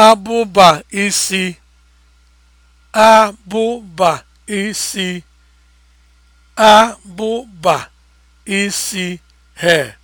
abụba isi abụba isi abụba isi hair